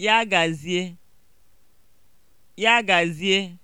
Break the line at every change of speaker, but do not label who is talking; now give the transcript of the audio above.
Ya gazie. Ya gazie.